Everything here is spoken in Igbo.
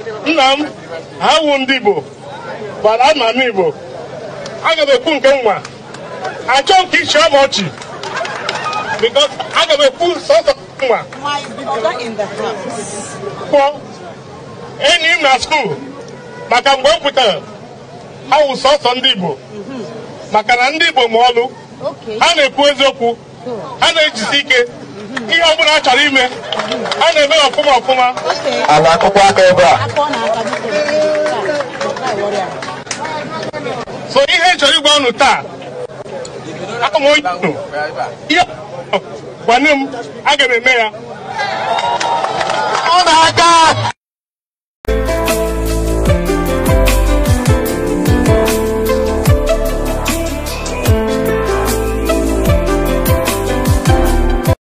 nna m wu ndị Igbo bara ama m Igbo aga m ekwu nke nwa achọ nke ichi ama ọchị because aga m ekwu sọsọ nwa kpọ enyi m na skuul maka mgbe m pụtara awụ sọsọ ndị Igbo maka na ndị Igbo ma ọlụ ha na-ekwu eziokwu a na-ejizi ike ihe ọ bụla a chọrọ ime a na-eme ọfụma ọfụma a na-akụkwa aka ebe a so ihe chọrọ ịgwa ọnụ taa ama onye ihe m aga m eme ya